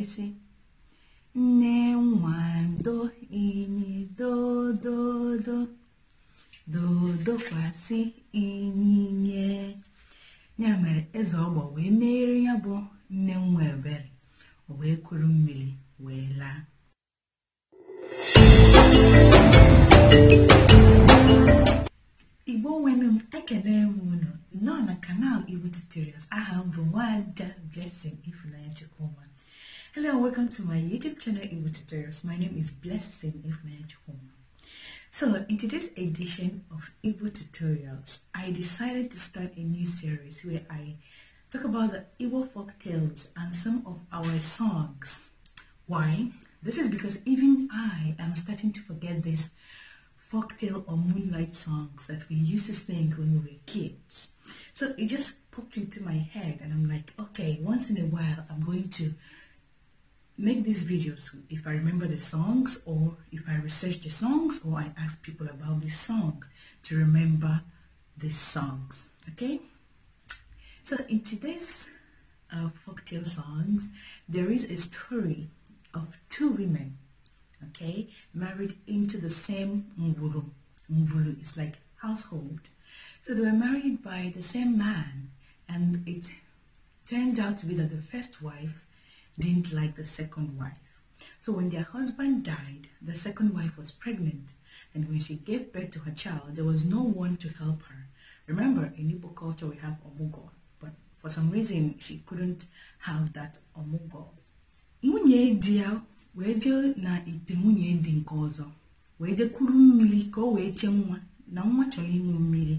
ezi nne nwado inyi dododo dodokwasị inyinye ya mere eze ọgbọ wee meere ya bụ nne nwa ebere wee kuru mmiri wee laa igbo nwenu m ekele m unu nọ na kanal igbo tutorials aha m bụ nwada blessing ifunanya chukwuma Hello and welcome to my YouTube channel Evo Tutorials. My name is Blessing Ifmejhoma. So in today's edition of Evo Tutorials, I decided to start a new series where I talk about the Evo folk tales and some of our songs. Why? This is because even I am starting to forget these folk tale or moonlight songs that we used to sing when we were kids. So it just popped into my head and I'm like, okay, once in a while I'm going to make these videos if I remember the songs or if I research the songs or I ask people about these songs to remember the songs okay so in today's uh, folktale songs there is a story of two women okay married into the same mbulu mbulu is like household so they were married by the same man and it turned out to be that the first wife didn't like the second wife. So when their husband died, the second wife was pregnant. And when she gave birth to her child, there was no one to help her. Remember, in Igbo culture, we have omugo. But for some reason, she couldn't have that omugo. Nwunye di ya na ite nwunye di nke ọzọ wee jee kuru na nwa chọrọ ịṅụ mmiri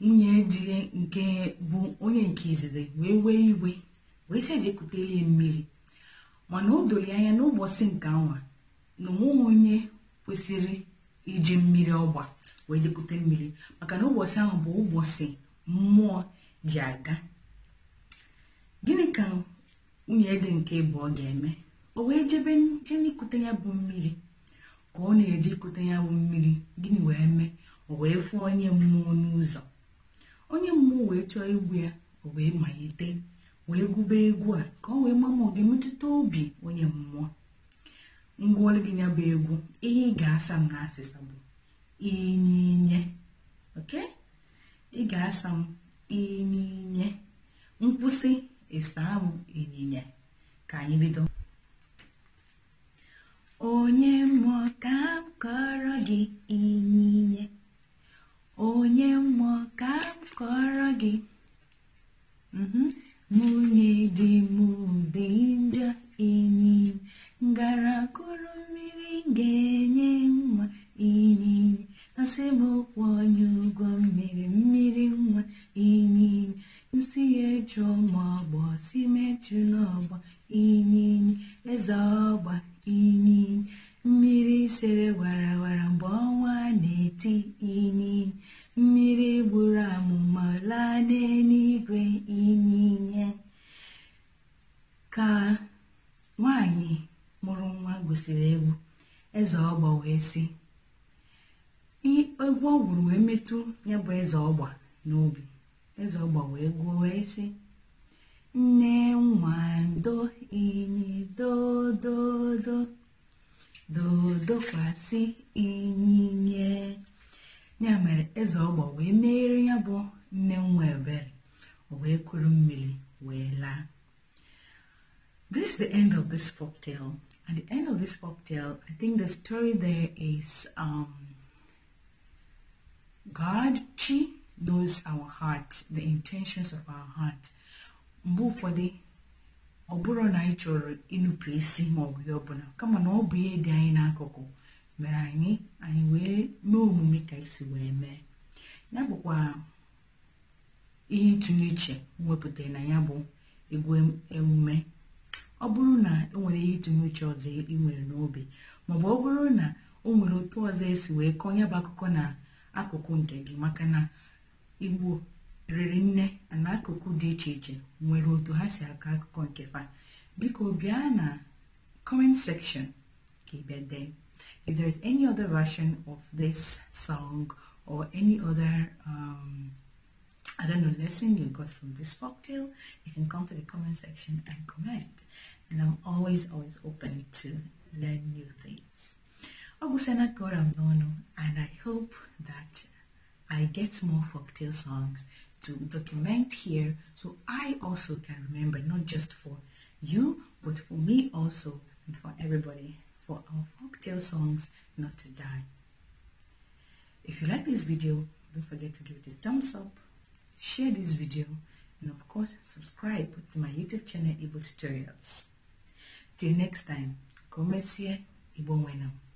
nwunye di nke bụ onye nke izizi wee wee iwe wee sị na ekutelie mmiri mana o doro anya n'ụbọchị nke anwa na onweghị onye kwesịrị iji mmiri ọgba wee jekute mmiri maka na ụbọchị ahụ bụ ụbọchị mmụọ ji aga gịnị ka nwunye dị nke ọ ga-eme o wee jebe je n'ikute ya bụ mmiri ka ọ na-eje ikute ya bụ mmiri gịnị wee mee o wee fụọ onye mmụọ n'ụzọ onye mmụọ wee chọọ igbu ya o wee malite wee gụba egwu a ka ọ wee maa ma ọ ga-emetụta obi onye mmụọ ngwaọrụ gị bụ egwu ihe ị ga-asa m na asịsa bụ inyinye oke ị ga-asa m inyinye nkwụsị ịsa ahụ ịnyịnya ka anyị bido onye mmụọ ka m kọrọ gị sere warawara mgbe ọnwa na-eti inyi mmiri gburu amụma laa n'eluigwe inyinye ka nwanyị mụrụ nwa gosiri egwu eze ọgba wee sị egwu ọ gwuru wee metụ ya bụ eze ọgba n'obi eze ọgba wee gwuo wee sị nne nwa ndo inyi dododo dodokwasị ya mere eze wee meere ya bụ nne nwa ebere wee kuru mmiri wee laa this is the end of this folk tale. At the end of this folk tale, I think the story there is um, God, Chi, knows our heart, the intentions of our heart. Mgbe ụfọdụ ọ bụrụ na anyị chọrọ ịnụpụ isi ma ọ bụ ihe ọbụla kama na ọ bụ ihe dị anyị n'akụkụ mere anyị anyị wee mee omume ka isi wee mee ya bụkwa ihe ịtụnye uche wepụtara na ya bụ egwu emume ọ bụrụ na enwere ihe ịtụnye uche ọzọ ị nwere n'obi maọbụ ọ bụrụ na o nwere otu ọzọ esi wee kọọ ya bụ akụkọ na akụkụ nke gị maka na igbo riri nne na akụkụ dị iche iche nwere otu ha si akọ akụkọ nke fa biko bịa na comment section ka if there is any other version of this song or any other um, I don't know lesson you got from this folktale you can come to the comment section and comment and I'm always always open to learn new things ọ gwụsịna ka ọra m n'ọnụ and I hope that I get more folktale songs to document here so I also can remember, not just for you, but for me also and for everybody, for our folktale songs not to die. If you like this video, don't forget to give it a thumbs up, share this video, and of course, subscribe to my YouTube channel, Ibo Tutorials. Till next time, come here, Igbo Wenam.